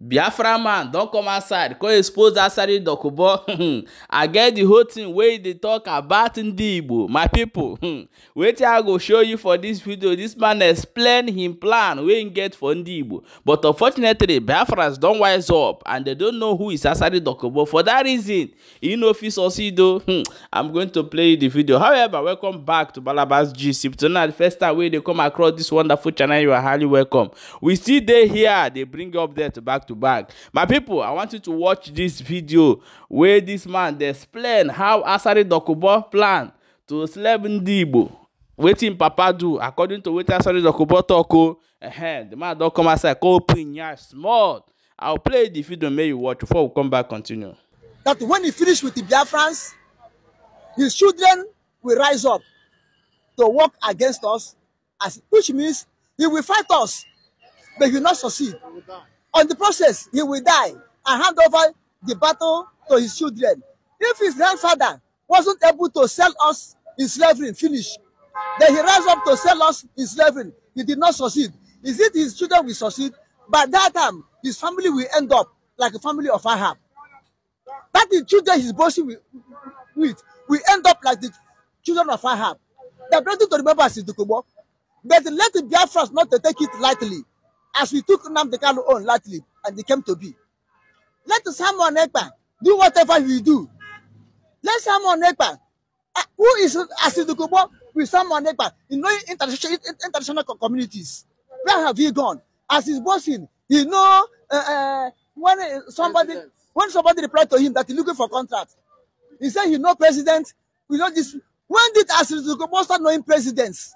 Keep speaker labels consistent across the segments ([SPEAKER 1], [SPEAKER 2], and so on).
[SPEAKER 1] biafra man don come outside come expose asari dokubo hmm, i get the whole thing wey dey talk about ndi my people hmm. wetin i go show you for this video this man explain him plan wey he get for ndi but unfortunately biafras don wise up and they don't know who is asari dokubo for that reason he no fit succeed o hmm, i'm going to play the video however welcome back to balabas gist if tonight the first time wey dey come across this wonderful channel you are highly welcome we still dey here dey bring you update back to back my people i want you to watch this video where this man explain how Asari dokubo plan to slap ndi igbo wetin papa do according to what Asari dokubo tok o ehem the man don come outside come open yansh small i will play the video make you watch before we come back continue.
[SPEAKER 2] that when he finished with the biafrans his children will rise up to work against us as which means he will fight us but he will not succeed. on the process, he will die and hand over the battle to his children. If his grandfather wasn't able to sell us in slavery, finish, then he rise up to sell us in slavery. He did not succeed. Is it his children will succeed? By that time, his family will end up like a family of Ahab. That the children he's boasting with will end up like the children of Ahab. The plenty to remember is the Kubo. But let the Biafras not to take it lightly as we took the Kalu on lightly and they came to be. Let someone Ekpa do whatever we do. Let Samuel Ekpa, uh, who is Asidukubo with someone Ekpa in knowing international, international communities. Where have you gone? As his bossing, you know, uh, uh, when uh, somebody when somebody replied to him that he's looking for contract, he said he know president, we know this. When did Asidukubo start knowing presidents?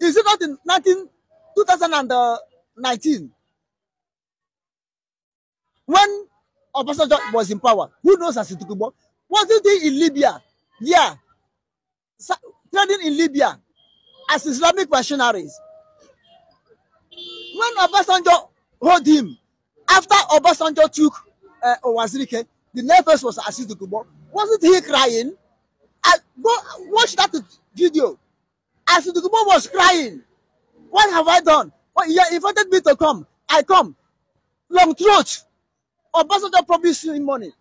[SPEAKER 2] Is it not in 19, 2000 and, uh, 19. When Obasanjo was in power, who knows Asitukubo? Wasn't he in Libya? Yeah. Trading in Libya as Islamic missionaries. When Obasanjo hold him, after Obasanjo took uh, Owazirike, the nervous was Asitukubo. Wasn't he crying? I, go watch that video. Asitukubo was crying. What have I done? Well, he invited me to come. I come. Long throat. Obasanjo promised him money.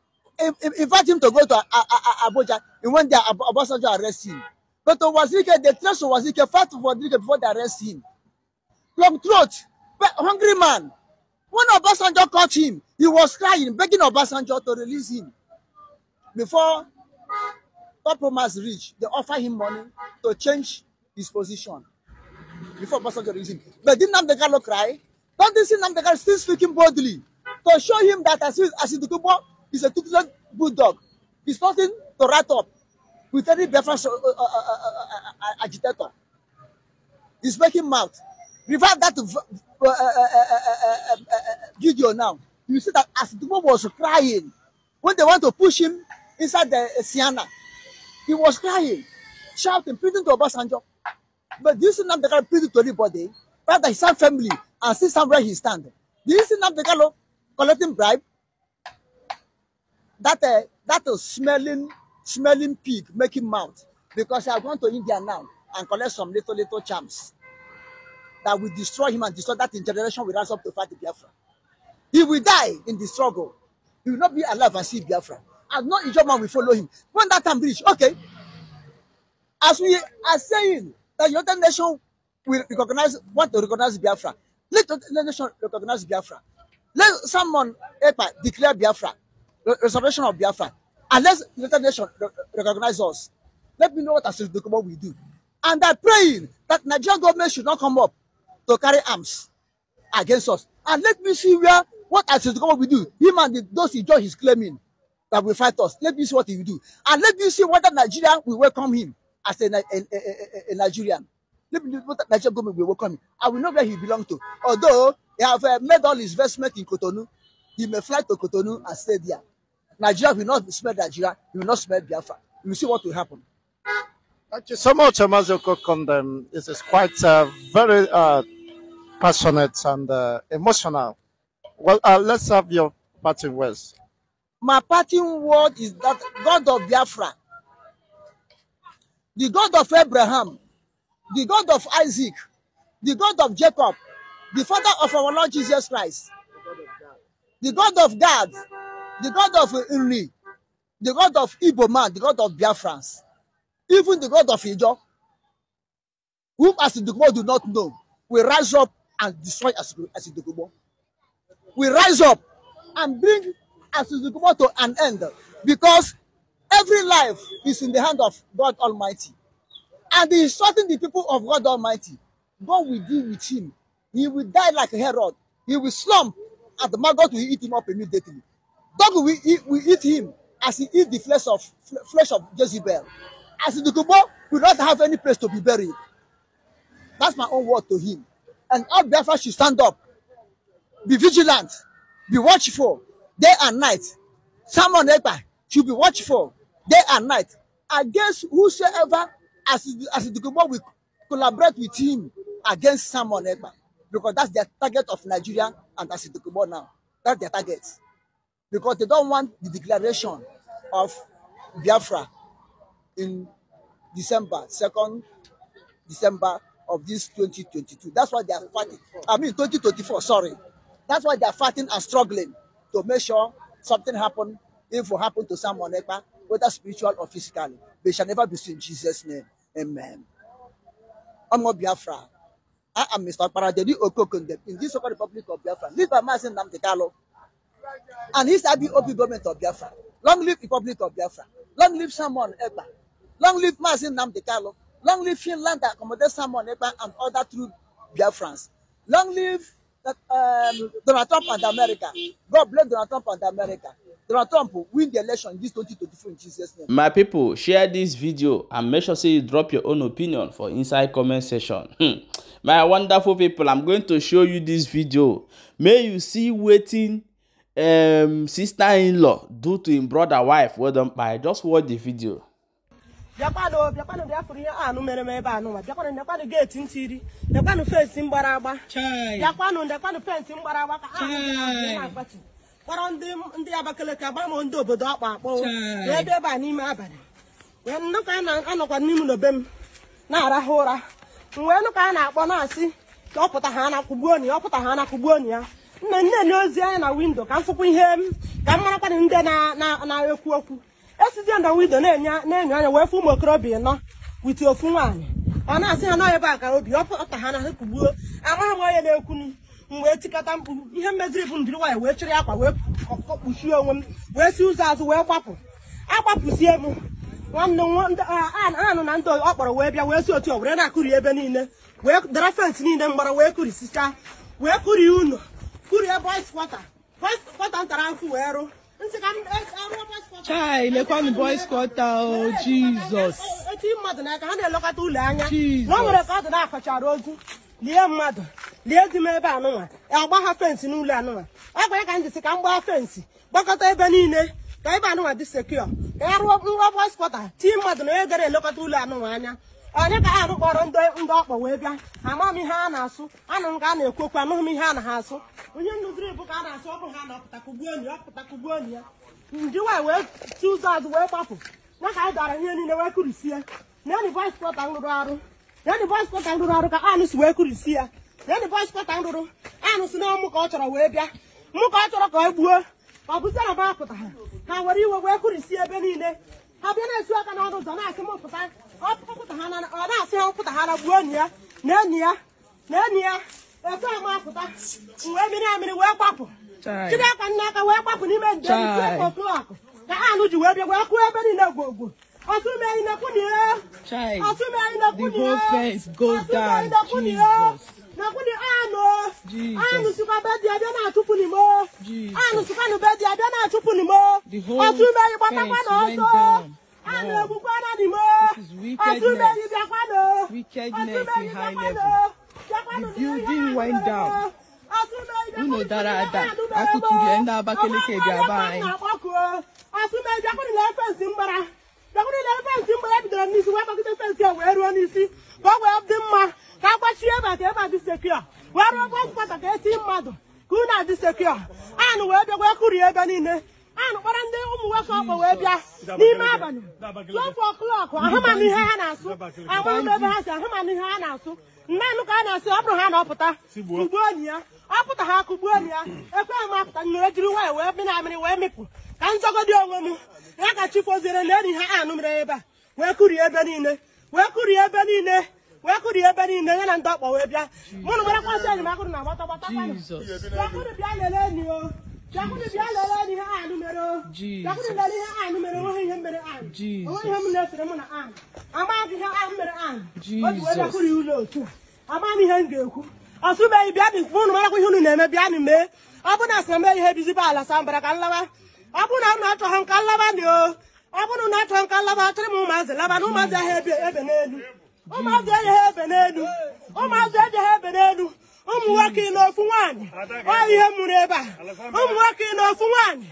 [SPEAKER 2] Invite him to go to Abuja. He went there. Obasanjo arrested him. But to Wazirike, they trust of Wazirike fought for Wazirike before they arrest him. Long throat, hungry man. When Obasanjo caught him, he was crying, begging Obasanjo to release him. Before compromise reached, they offer him money to change his position. before Obasanjo regime. But did Namdekalo cry? Don't they see Namdekalo still speaking boldly to show him that as Asidukubo is a tutelant bulldog? He's nothing to rat up with any Biafran uh, uh, uh, agitator. He's making mouth. Revive that video now. You see that Asidukubo was crying when they want to push him inside the Siena. He was crying, shouting, pleading to Obasanjo. But do you see now the guy pleading to anybody? Rather, his own family and see somewhere he stand. Do you see now Nnamdi Kanu collecting bribe? That uh, that uh, smelling smelling pig making mouth because I gone to India now and collect some little little charms that will destroy him and destroy that generation will rise up to fight the Biafra. He will die in the struggle. He will not be alive and see Biafra. And no Ijoman will follow him. When that time reach, okay. As we are saying, that United Nations will recognize, want to recognize Biafra. Let the United Nations recognize Biafra. Let someone EPA declare Biafra, restoration of Biafra. Unless United Nations recognize us, let me know what as document we do. And I'm praying that Nigerian government should not come up to carry arms against us. And let me see where what as document we do. Him and the, those he judge is claiming that will fight us. Let me see what he will do. And let me see whether Nigeria will welcome him. as a, a, a, a Nigerian. Let me what Nigerian government will welcome him. I will know where he belongs to. Although he have uh, made all his investment in Cotonou, he may fly to Cotonou and stay there. Nigeria will not smell Nigeria, he will not smell Biafra. You will see what will happen. Thank you so much, Amazoko Kondem. This is quite uh, very uh, passionate and uh, emotional. Well, uh, let's have your parting words. My parting word is that God of Biafra the God of Abraham, the God of Isaac, the God of Jacob, the Father of our Lord Jesus Christ, the God of God, the God of Uri, the God of Igbo man, the God of Biafrans, even the God of Ijo, whom Asidigbo do not know, will rise up and destroy Asidigbo. We rise up and bring Asidigbo to an end because Every life is in the hand of God Almighty. And he instructing the people of God Almighty. God will deal with him. He will die like Herod. He will slump, and the maggot will eat him up immediately. Dog will eat, will eat him as he eat the flesh of flesh of Jezebel. As the Kubo will not have any place to be buried. That's my own word to him. And all Biafra should stand up, be vigilant, be watchful, day and night. Someone should be watchful. day and night against whosoever as as Idigbo will collaborate with him against Simon Ekpa because that's their target of Nigeria and as Idigbo now that's their target because they don't want the declaration of Biafra in December second December of this 2022 that's why they are fighting I mean 2024 sorry that's why they are fighting and struggling to make sure something happen if it happen to Simon Ekpa whether spiritual or physical. They shall never be seen in Jesus' name. Amen. I'm not Biafra. I am Mr. Paradeli Okokundem in this Republic of Biafra, live by Mazin Namdekalo. And his IBOP government of Biafra. Long live Republic of Biafra. Long live someone. Eba. Long live Mazin Namdekalo. Long live Finland that accommodates someone. Eba and other true Biafrans. Long live that, uh, um, Donald Trump and America. God bless Donald Trump and America. Donald Trump win the election in this 2023 in Jesus' name. My
[SPEAKER 1] people, share this video and make sure say you drop your own opinion for inside comment section. My wonderful people, I'm going to show you this video. May you see waiting um, sister-in-law do to him brother wife. Well done, by just watch the video.
[SPEAKER 3] bịakwanụ kpọrọ ndị ndị Abakaliki agba m ndị obodo ọkpa akpọ wee debe a n'ime abalị wee na-anọkwa n'ime n'obe m na-arahụ ụra mgbe nụka anyị na-akpọ na-asị ọ pụta ha na-akụgbuo ọpụta ọ pụta ha na ya nna nne na ozi anya na windo ka m fụkwa ihe m ka m marakwana na ndị na-ekwu okwu esizie na windo na-enye enyo anya wee fụ ụmụ okorobịa nọ witi ofu nwaanyị ọ na-asị ha nọ ebe a ka obi ọ pụta ha na-akụgbuo amaghị m onye na-ekwu m wee tikata mkpu ihe mmeziri bụ ndịrị nwaanyị wee chịrị akwa wee kpuchie onwe m wee si ụzọ azụ wee kwapụ akwapụzie m nwanne anụ na ndị ọ kpọrọ wee bịa wee si otu were na-akụri ebe niile wee dara fensị niile mgbara wee kụrisichaa wee kụrie ụlọ kụrie boys kwata boys kwata ntara afụ wee rụ chai lekwanụ boys kwata o
[SPEAKER 2] jizọs
[SPEAKER 3] eti mmadụ n'aka ha na-elekọta ụlọ anya nwa nwere ka ọ dị na-akọchara ozu lie mmadụ lie di m ebe anụnwa agbagha fensị n'ụlọ anụnwa ọ gwara ka m ka m gbaa fensị gbakọta ebe niile ka ebe anụnwa dị sekio ka ya rụọ nrọ bọspọta tii mmadụ na onye gara elekọta ụlọ anụnwa anya onye ka ha rụkpọrọ ndị ndị ọkpọ wee bịa ama m ihe a na-asụ anụ m ka a na-ekwokwu anụghị m ihe a na ha asụ onye ndụziri bụ ka a na-asụ ọ bụ ha na-apụta kugbuo onyi ọpụta kugbuo onyi ya ndị wee wee chi ụzọ azụ wee gbapụ ya ka anyị dara ihe niile wee kurisie na enyi bọspọta rụrụ arụ na enyi bọspọta rụrụ arụ ka anụ si wee kurisie ya red boys pata m rụrụ anụsị na ọmụ ka e ọ chọrọ wee bịa mụ ka ọ chọrọ ka ọ gbuo ọ bụzi na ba apụta ha ha were iwe wee kụrisi ebe niile ha bịa na esi aka n'ọnụ ụzọ na-asị m pụta ọ na-asị ha pụta ha na gbuo enyi ya na enyi ya na enyi ya etu ama apụta wee miri amịrị wee gbapụ chiri aka nne aka wee gbapụ n'ime njem isi otu akụ ka anụ ji wee bịa wee kụọ ebe niile gwogwo ọtụmeghị na kwunie ọtụmeghị na kwunie ọtụmeghị na kwunie makwụdị anụ anụ sikwa be dị abịa na-achụpụ n'imo anụ sikwa be dị abịa na-achụpụ n'imo ọtụ mmeri gbatakwa na ọsọ anụ egbukwa na n'imo ọtụ mmeri bịakwanụ ọtụ mmeri bịakwanụ bịakwanụ n'ime ihe anụ unu dara ada akụkụ ihe ndị abakeleke bịaba anyị asụmeji akwụrịla mgbara mgbara n'isi wee n'isi ọkụ rie ebe niile anụkpara ndị ụmụ nwoke ọkpọ wee bịa n'ime abalị tupu ọklọkụ ahụmanụ ihe ha na-asụ agbara m ebe ha si ahụmanụ ihe ha na-asụ nne nụ ka a na-asị ọ bụrụ ha na ọpụta kụgbuo onyi ya ọ pụta ha kụgbuo onyi ya ekwe m apụta nyere jiri nwanyị wee mịrị amịrị wee mịpụ ka nzọgodi onwe m ya ka chifoziere na enyi ha anụ mere ebe a wee kụrie ebe niile wee kụrie ebe niile wee kụrie ebe niile ya na ndị ọkpọ wee bịa mụnụ marakwa sị enyi m akụrụ na gbata gbata bịa lelee enyi o bịakwụrụ bịa lere ihe anụ mere bịakwụrụ ihe anụ mere onwe ihe mere ihe m na-esere ihe mere o wee ụlọ otu a ihe ga-ekwu ọsụbeghị bịa bịa unu marakwa ihe unu na-eme bịa n'ime. mee ọ na ihe bizibe ala sambara ka nlawa ọ na unu achọghị nka nlawa dị o na achọghị nka nlawa achọrọ m ụmụazị laba na ụmụazị ahịa ebe n'elu ụmụazị ejeghị ebe n'elu ụmụazị ejeghị ebe n'elu ụmụ nwoke na ofu nwaanyị ọ ihe mụrụ ebe a ụmụ nwoke na ofu nwaanyị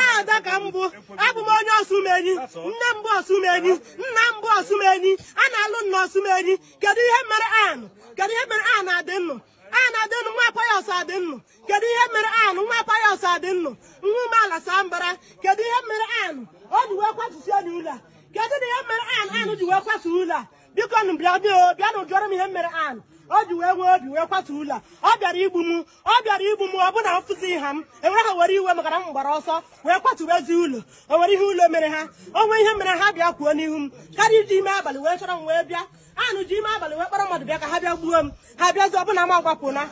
[SPEAKER 3] ada ka m bụ abụ m onye ọsụmenyi nne m bụ ọsụmenyi nna m bụ ọsụmenyi a na-alụ nna ọsụmenyi kedu ihe mere anụ kedu ihe mere anụ adị nnụ anụ adị nnụ nwa payọs adị nnụ kedu ihe mere anụ nwa payọs adị nnụ nwa umeala saa mbara kedu ihe mere anụ o ji wee kwatusie n'ụlọ a kedu na ihe mere anụ anụ ji wee kwatuo ụlọ a biko nụ bịa dị o bịa na m ihe mere anụ o ji wee nwee obi wee kwatu ụlọ ọ bịara igbu m ọ bịara igbu m ọ bụ na mfụzi ha m enwere ha were iwe maka na m gbara ọsọ wee kwatuwe ezi ụlọ o nwere ihe ụlọ mere ha o nwee ihe mere ha bịa kwuo n'ihu m karịa iji ime abalị wee chọrọ m wee bịa anụ ji ime abalị wee kpọrọ mmadụ bịa ka ha bịa gbuo m ha bịazi ọbụna m agbapụna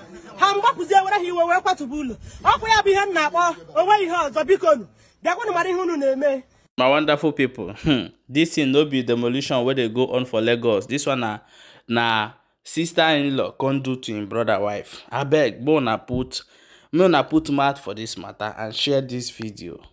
[SPEAKER 3] ha mgbapụzie ewere ha iwe wee kwatụba ụlọ ọkwa ya bụ ihe m na-akpọ onwe ihe ọzọ biko bịakwanụ mara ihe unu na-eme
[SPEAKER 1] my wonderful people, hmm dis thing no be demolition where they go on for lagos This one na na sister in law come do to him brother wife abeg may una put me put mouth for this matter and share this video